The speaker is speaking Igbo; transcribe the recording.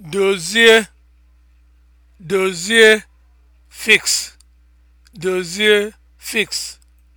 dozie dozie fix dozie fix